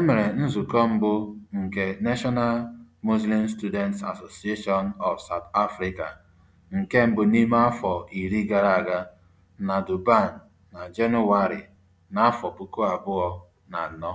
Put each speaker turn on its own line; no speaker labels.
E mere nzukọ mbụ nke National Muslim Students Association of South Africa nke mbụ n'ime afọ iri gara aga na Durban na Jenụwarị n'afọ puku abụọ na anọ.